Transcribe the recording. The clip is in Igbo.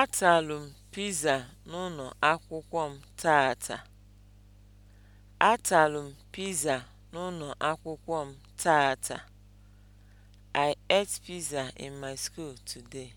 Ataalụ m piza n'ụlọ akwụkwọ m taata. Ataalụ m piza n'ụlọ akwụkwọ m taata. I ate pizza in my school today.